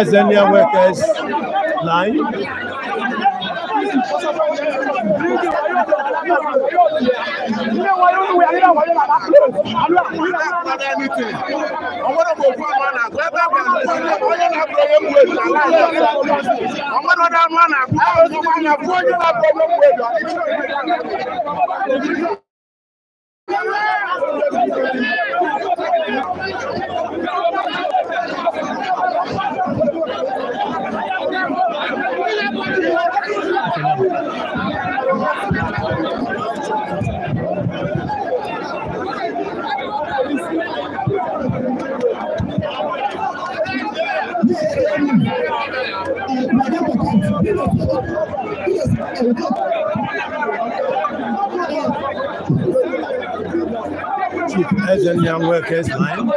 Ezenia Workers Line ilé wọn yóò wúwo yàrá wọn yóò bàbá kúrò àlọ́ àkúrò náà. ọ̀pọ̀lọpọ̀ ẹnìtì ọmọdé kò fún ọmọ náà gbẹ́gbẹ́ kò fún ọmọ yẹn náà bọ̀ wọ́n wúwo ìlú àlọ́ ọmọdé ọ̀dọ́ ọmọ náà fún ọmọ náà fún ọmọ náà fún ọmọ náà fún ọmọ náà Chief Peasant Young Workers am.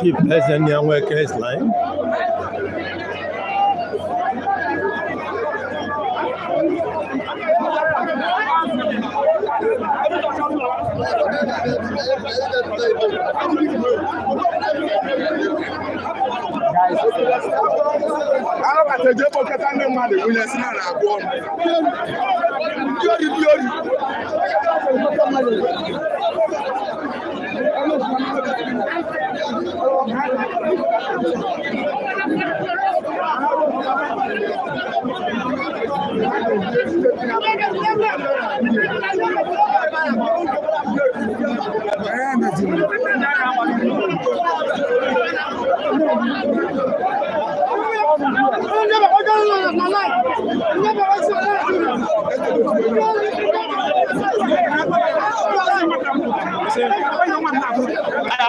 Chief Lesenian Workers Line. Arabata je bokata ndị mmadụ wụnyesị na na-abụ ọnụ. Ndị ori ndị ori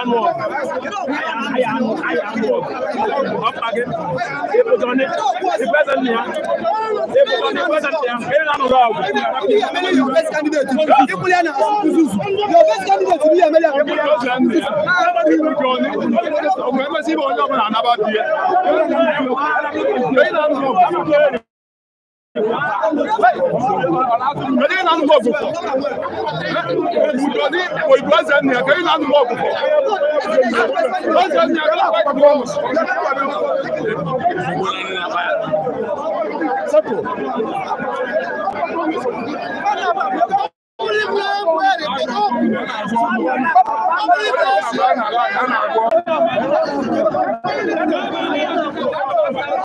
iron work. Iron work. Iron work. Up again. People done it. The present here. People done the present here. Here now rob. Your best candidate. People here now. Your best candidate to be a mayor. People just land there. Nobody will join it. Ọgbẹ́mẹ́sí bọ̀ ọjọ́ bọ̀ náà nábàá bí ẹ. Bẹ́ẹ̀ náà rob. Mede yi nanu bɔɔbu fɔ. Ebudɔni oyibo ɛsɛ nia ke yi nanu bɔɔbu fɔ. Ɛsɛ nia kala akpa bɔɔbu. Sɛpo. Thank you.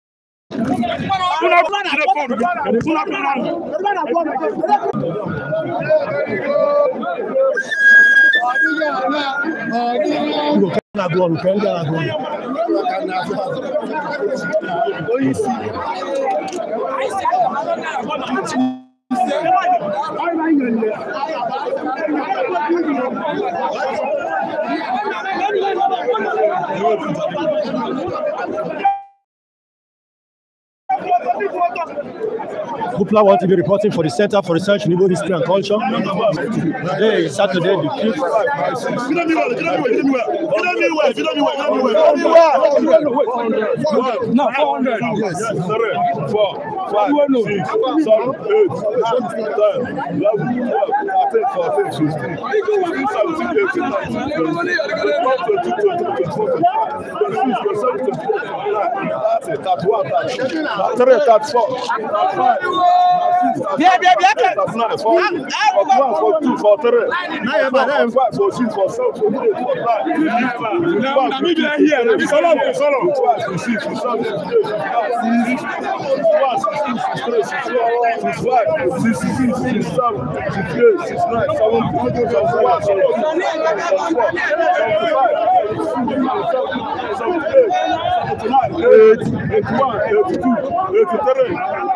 Una plana de fondo, una plana. Plana fondo. Na glória, quero dar na glória. Thank you. Gupla to be reporting for the Center for Research in Igbo History and Culture. Today is Saturday, the 5th. Yes. that's fault. Yeah, yeah, yeah. That's not For one, for two, for three. For five, for six, for seven, for eight, for nine. eighty-one eighty-two eighty-three.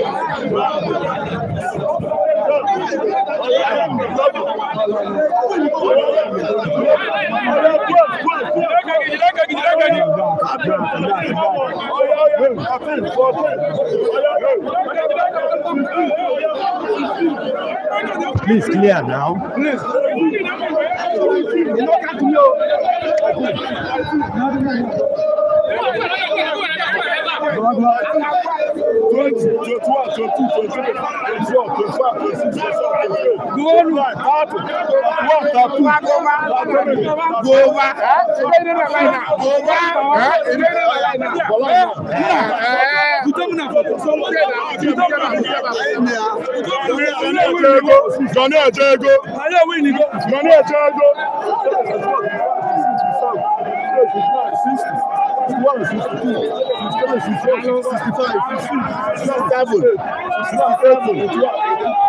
Thank you. Please clear now. Please duonu wọta tu gowa gowa Gani ẹjẹ ego. Gani ẹjẹ ego. one sixty two sixty three sixty four sixty five sixty seven sixty eight.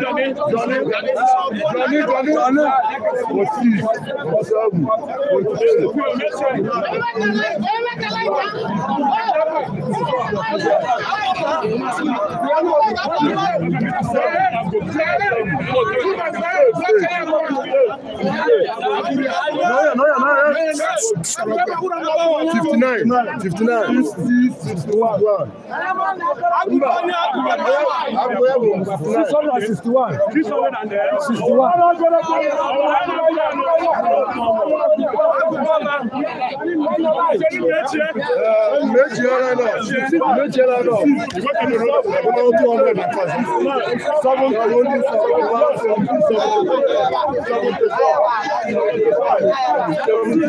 Jọ̀ní Jọ̀ní Jọ̀ní Jọ̀ní Jọ̀ní kò sí kò sọ́ọ̀bù kò sí èrè. Thank you. 59 59 61 61 méjì ọ̀rẹ́ náà méjì ọ̀rẹ́ náà ọmọ ọdún ọ̀rẹ́ nàkà sí seven twenty seven one seventy seven seventy four seventy five seventy. 76, 77, 78,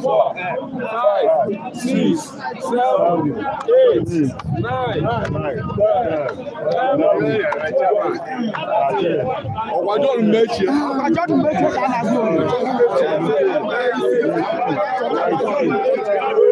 four, five, six, seven, eight, nine, ten, eleven. Ọ̀wájọ́ ọdún méje. Ọ̀wájọ́ ọdún méje kan náà bí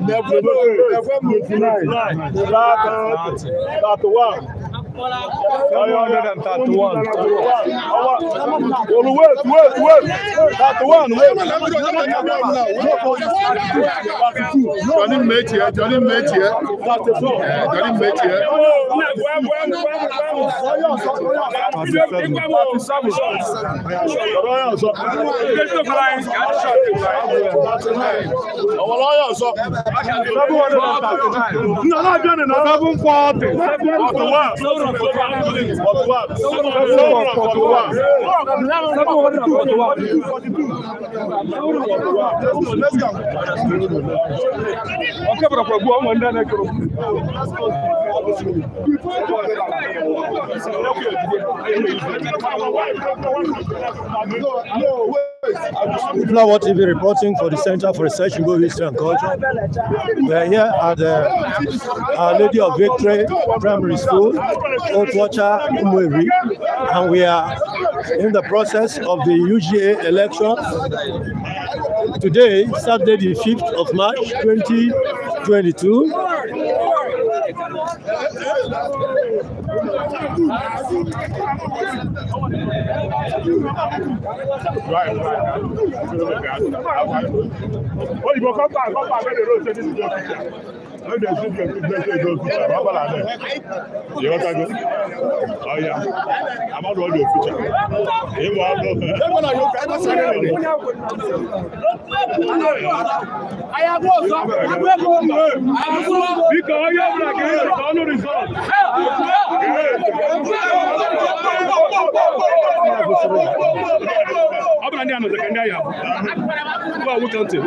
Never lose. Never lose. 99. 99. 99. 99. 99. 99. 99. 99. 99. 331. Well, wait, wait, wait. That one, wait. Johnny mate here, Johnny mate here. Johnny mate here. Àwọn lọ́yọ̀ sọ. Seven hundred and thirty-nine. Nana Jẹ́nìí náà. Seven forty. Seven forty-one. No, no, wait. Abdullah TV reporting for the Center for Research in Go History and Culture. We are here at uh, Lady of Victory Primary School, Old Watcher, Umweri, and we are in the process of the UGA election. Today, Saturday the 5th of March 2022. Right, right. Oh, you go come back, come back, let the road no dey see the blessing go future na bala dem you got go oya amadu all your future e mo abo me e mo na yo ka ma sare le aya go so agbe go mo aya go biko oya bra ke no ọ ndị a nọzika ndị agha bụ nwoke ntị akaụntụ one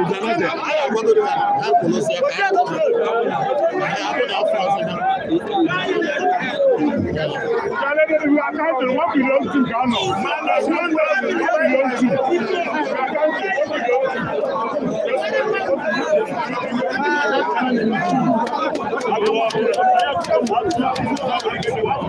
billion two ka a nọ one billion two akaụntụ one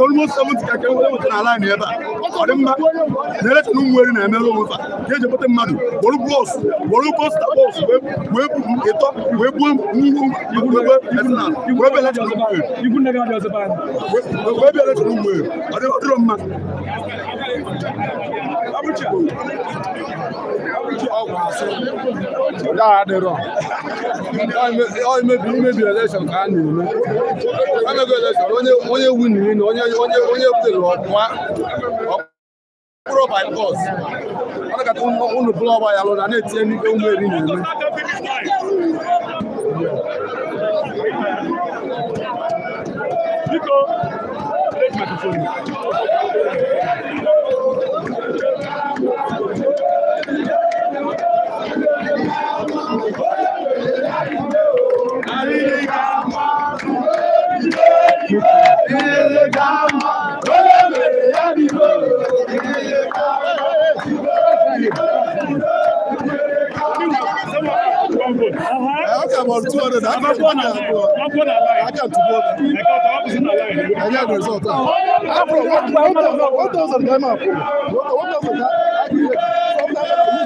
mmadụ almost 70 ka kewere nwetara ala anyị ebe a ọ kọrọ mma na-erecha na ụmụeri na-emere onwe fa ka eji ebute mmadụ gboro bọs gboro bọs na bọs wee buru ịtọ wee gbuo ngwu igwurebe etinal wee bịa lecha n'ụmụeri wee bịa lecha n'ụmụeri ọ dịrọ mma That adịrọ. Ọ imebi imebi election ka a na-eme. Emego election onye onye wini na onye onye onye butere ọnwa ọkpụrụ by force. Ọ nakata unu bụrụ ọgba ya lụrụ na-etinye n'ihe ụmụ eri na-eme. Biko, take microphone. ilé kama lóye mèrè yá mi lò ilé kama ilé kama. I can about 200. I can one I can two more. I got the result. I bro, what thousand? What thousand? What thousand?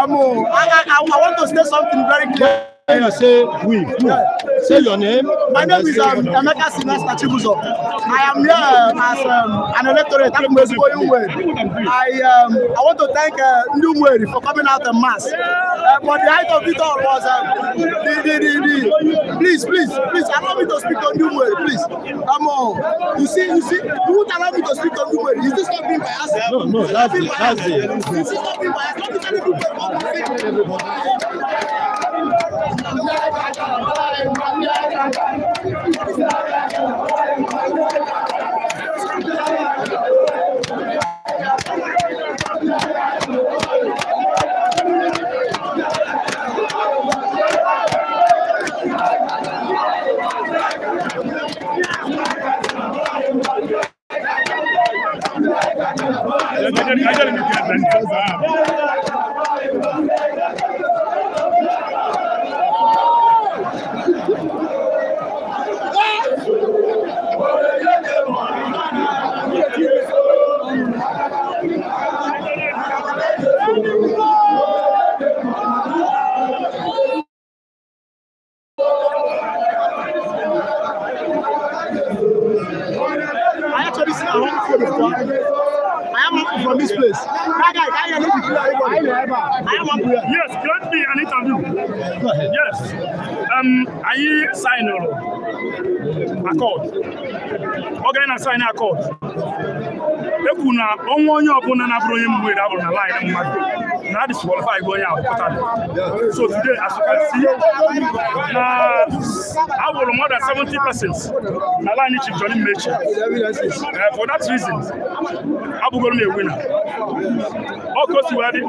I, I want to say something very clear. Say we. Say your name. My name is um, Emeka Sylvester Chibuzo. I am here um, as um, an electorate at Mwesibo I, um, I want to thank uh, Umweri for coming out the mass. Uh, but the height of it all was um, the, the, the, the, please, please, please allow me to speak on Umweri, please. Come on. You see, you see, you won't allow me to speak on Umweri. Is this not being biased? No, no, that's it. That's it. Is this not being biased? Not to tell people what to think. akọd ọ gara na saịn akọd ekwu na ọnwa onye ọbụla na-abụrụ onye mgbe abụrụ na laịn mmadụ na disqualify onye ahụ pụtara so today as you can see na abụrụ more than 70 persons na laịn chief Johnny Mechi for that reason abụgoro m ewina ọ kosiwadị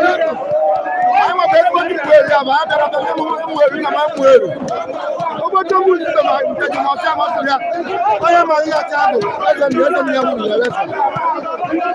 ama bɛ ko ni pueri a b'a kɛra bɛ ni pueri na o bɛ to mun a yɛ ma yɛ tɛ a do a yɛ mi yɛ tɛ mi yɛ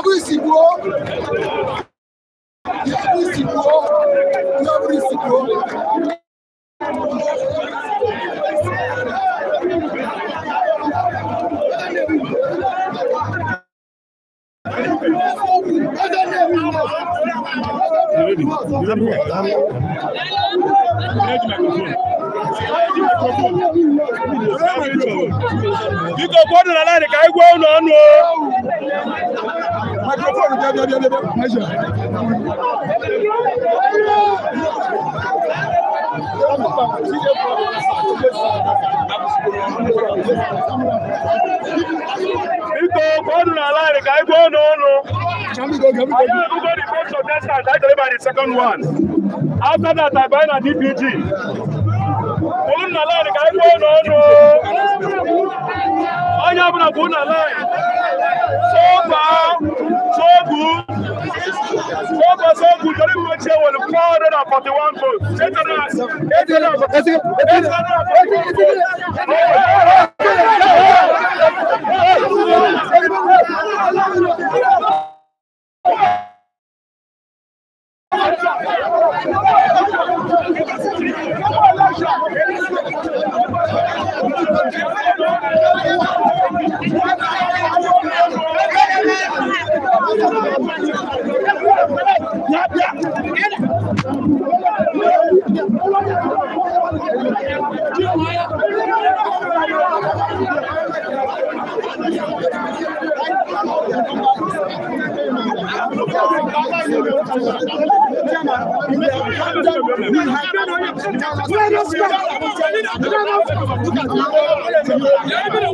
every ìsìnkú o every ìsìnkú o every ìsìnkú o. Biko gbọdụrụ ala dị ka egwu ọnụ ọnụ microphone bia bia bia bia measure. Biko ọnụ n'ala anyị ka anyị gwa ọnụ ọnụ. Anyị ebugo the first contestant, I deliver the second one. After that, I buy na DPG. Ọnụ n'ala anyị ka anyị gwa ọnụ ọnụ. Onye ọbụla bụ n'ala so far, so good. So far, so good. The Olympic chair will 441 votes. 800. Thank you. Let us go.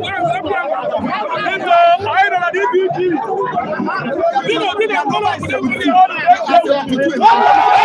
Thank you.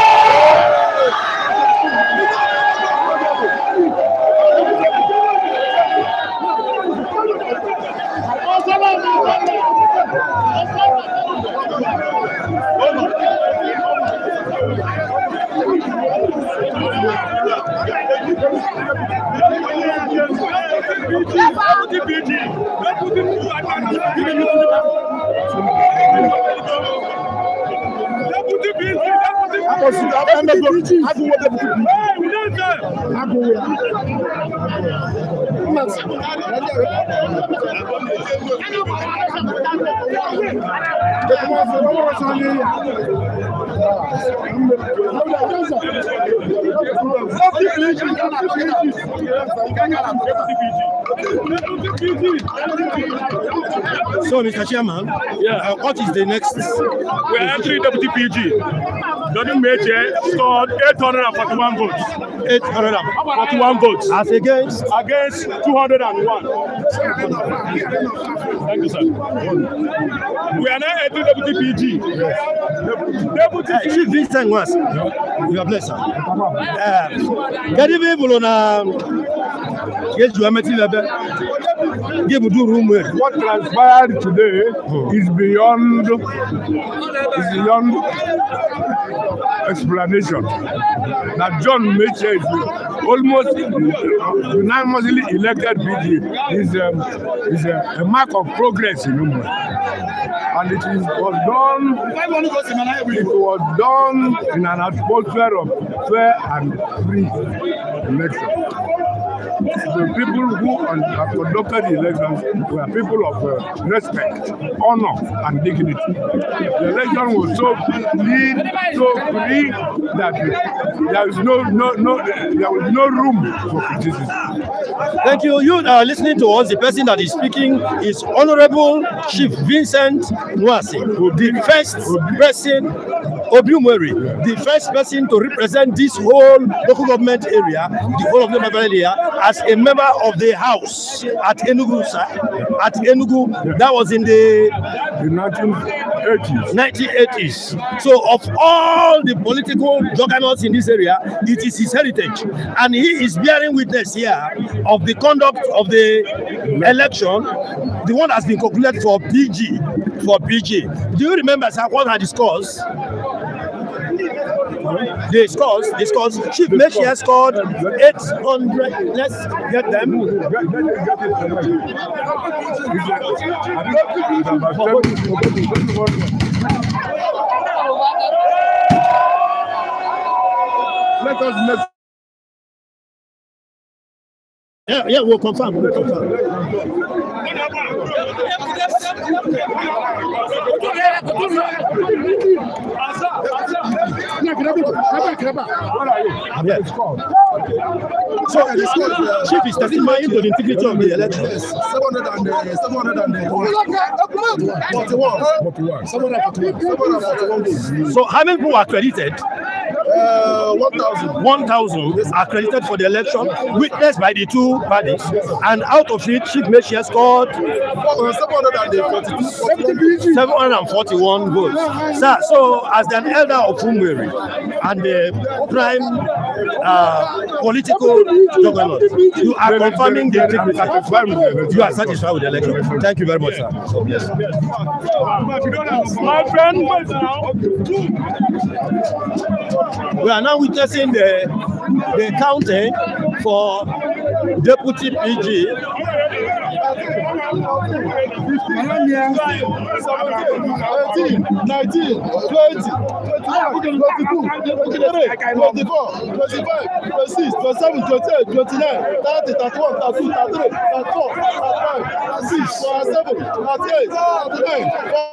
So, Mr. Chairman, yeah. Uh, what is the next? We We're entering WTPG. Jordan major scored 841 votes. 841 votes. As against? Against 201. Thank you, sir. We are now at Deputy PG. Deputy PG. Chief Vincent was. You are blessed, sir. Uh, Good evening, Bolona. Yes, you are meeting give do room What transpired today is beyond is beyond explanation. That John Mitchell is almost unanimously elected PG is um, is a, a mark of progress in Umwe. And it is, was done it was done in an atmosphere of fair and free election the people who have conducted the elections were people of uh, respect, honor, and dignity. The election was so clean, so free that there is no no no there was no room for criticism. Thank you. You are uh, listening to us. The person that is speaking is Honorable Chief Vincent Nwasi, the first person Obiumweri, the first person to represent this whole local government area, the whole of the area, as a member of the House at Enugu, sir, at Enugu, that was in the, the 1980s. 1980s. So of all the political juggernauts in this area, it is his heritage. And he is bearing witness here of the conduct of the election, the one that has been concluded for PG, for PG. Do you remember sir, what I discussed? They scores, they scores. Chief Mechia scored 800. Let's get them. Let us next. Yeah, yeah, we'll confirm. We'll confirm. Asa, asa, back it up, people. Come it up. So, uh, Chief, is testing my into the integrity of the election. Yes, 700 and uh, 741. 41. Uh, so, how many people are credited? Uh, 1,000 1, yes. accredited for the election, witnessed by the two parties, and out of it, Chief Meshia scored 741 votes. Sir, so as an elder of Umweri, and the prime uh, political juggernaut. You are confirming the integrity. You are satisfied with the election. Thank you very much, sir. So, yes. My friend, we are now witnessing the the counting for deputy PG eighteen nineteen twenty twenty two twenty three twenty four twenty five twenty six twenty seven twenty eight twenty nine thirty thirty one thirty two thirty three thirty four thirty five thirty six thirty seven thirty eight thirty nine.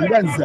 Uganza. Uganza.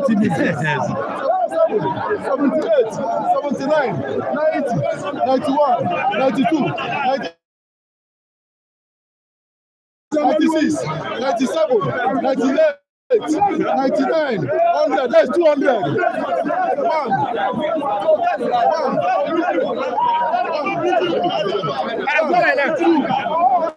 láti ibi díẹ̀ díẹ̀ sí. seventy eight seventy nine ninety ninety one ninety two ninety. 96, 97, 98, 99, 100, that's 200. One, one, one, two,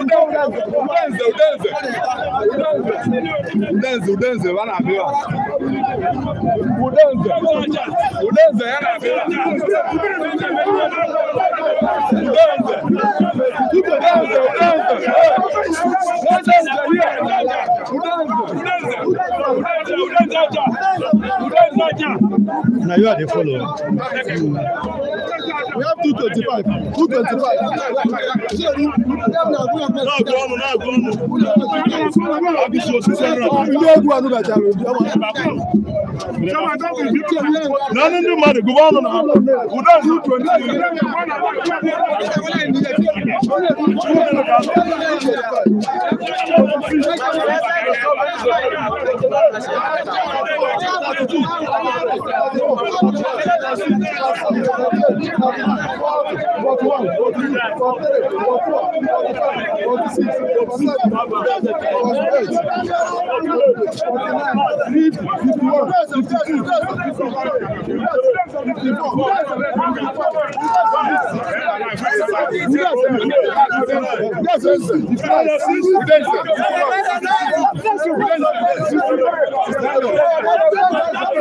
udenze udenze udenze udenze vanabiwa udenze udenze yanabiwa udenze udenze udenze udenze udenze udenze Now you are the follower. We have 225. 225. None of them are the governor. Yes,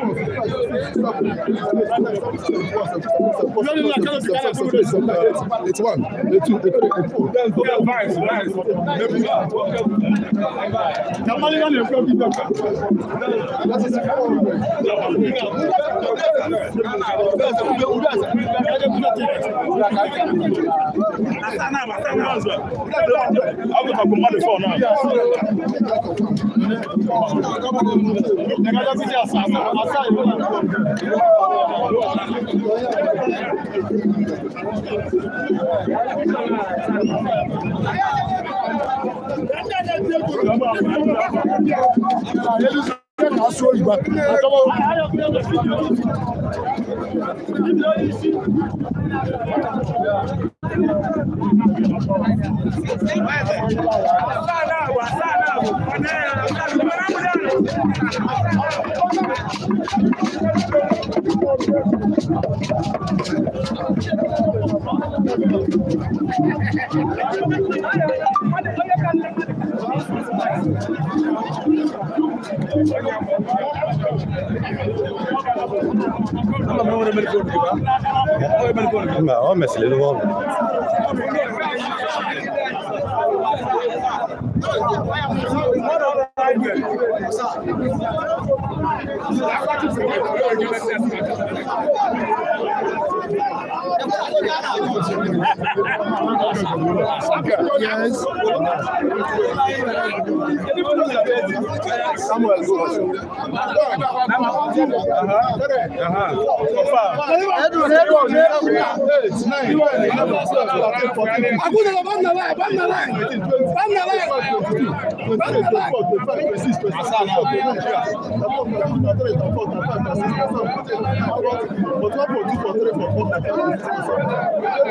It's one, it's two, it's four. That's Wàhálà wàhálà wàhálà. ما هو مثل الوضع Thank you. Yes. Samuel, go. Edward, Edward, Edward. Aguda la banda la, banda la, banda la, banda la. But what for two for three for four?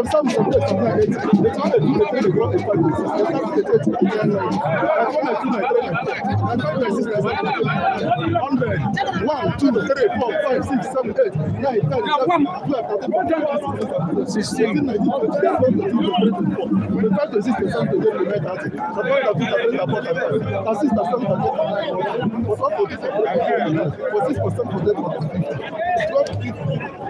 sometimes some people children dey dey try dey do the thing dey grow up for the system sometimes they take two million naira i come like two like three like i come like six like seven eight hundred one two three four five six seven eight nine ten eleven twelve thirteen fourteen fifteen sixteen sixteen nineteen twenty twenty twenty twenty twenty four we try to see the same thing wey we make out suppose na two thousand and four thousand na six na seven thousand and nine for for for for six for seven for eight for twelve fifteen.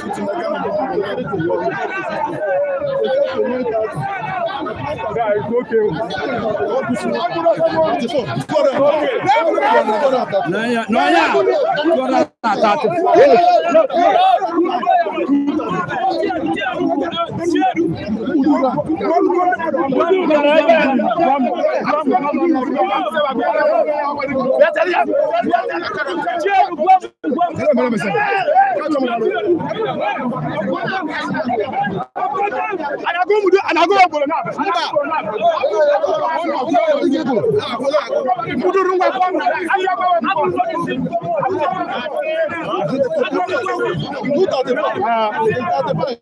with Nagama people to get it to work. So just to know that guy is okay. What is it? No, yeah, no, yeah. Go down at that. Muta de paz. Muta de paz.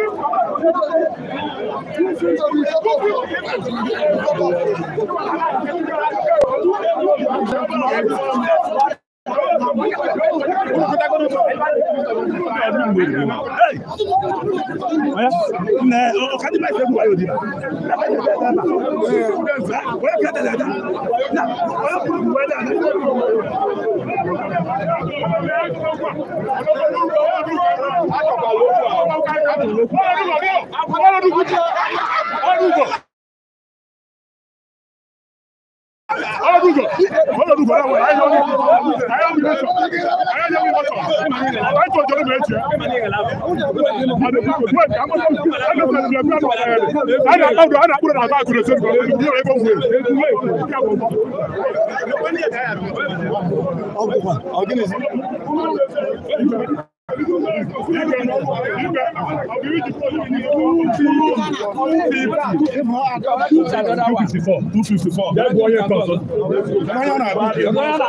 Thank you. Ọdún kò ọlọ́dúnjọ ọlọ́dúnjọ náà wọlé ayé ọdún ayé ọdún mẹsọ ayé ọdún mẹsọ ayé tó jọlọ mẹ tiẹ ana awudu ana awudu na abaa kure sori kọlẹ ni yẹrẹ bọ wuli. ọgbọgba ọgbẹni. 254. That boy here comes. Mayana Abuki. Mayana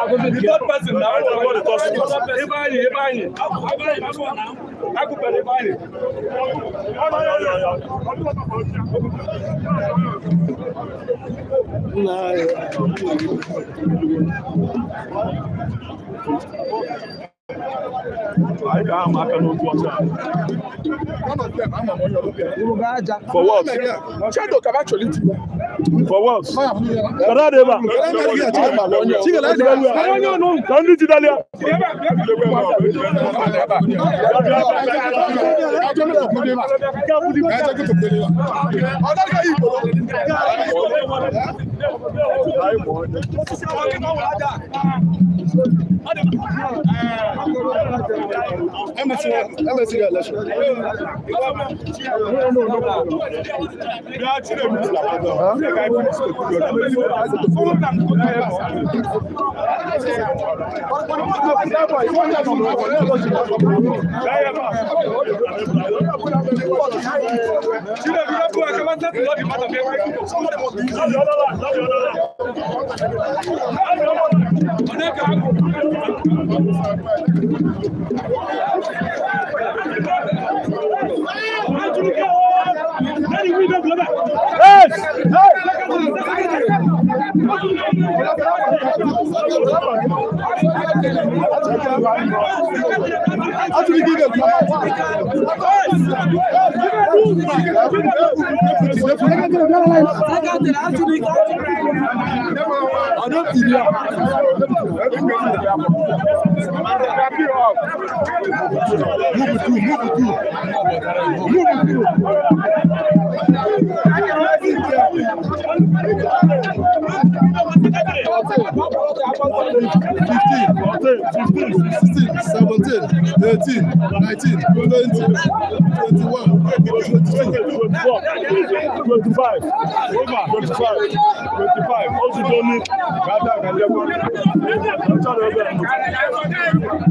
Abuki. The that man cannot go outside. For what? Shadow can For what? Kada deba. Kada MSC election. No, no, no. Ọdún tìrì ọ̀. Move it through, move it through. Move it through. Fifteen, fifteen, sixteen, seventeen,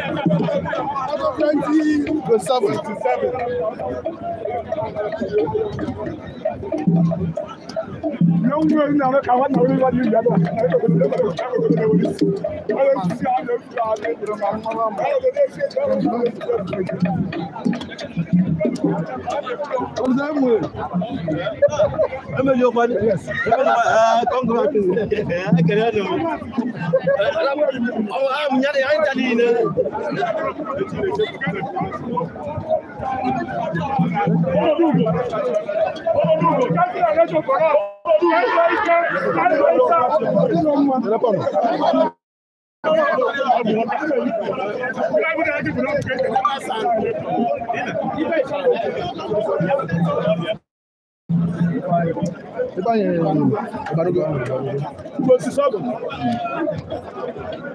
twenty to seven. to seven. Yóò wúwo ní àwọn kan wọ́n I'm that way. I mean, your body. Yes. I can't go back to I can handle it. Oh, I'm not a Italian. Thank you. Thank you nípa yẹn ìbàdógó twenty seven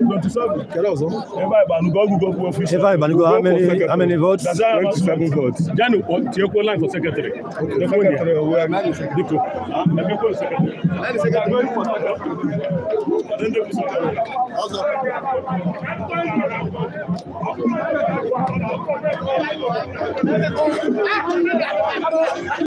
twenty seven kẹlẹ ọsán. nípa ìbànúgọ google google office. nípa ìbànúgọ how many how many votes. twenty seven votes. jẹ́nu tí ó kó line for secretary. okay secretary owó ẹ̀ dípò ẹ̀mí kó secretary. ẹ̀mí secretary kó secretary. ọ̀sán. Thank you.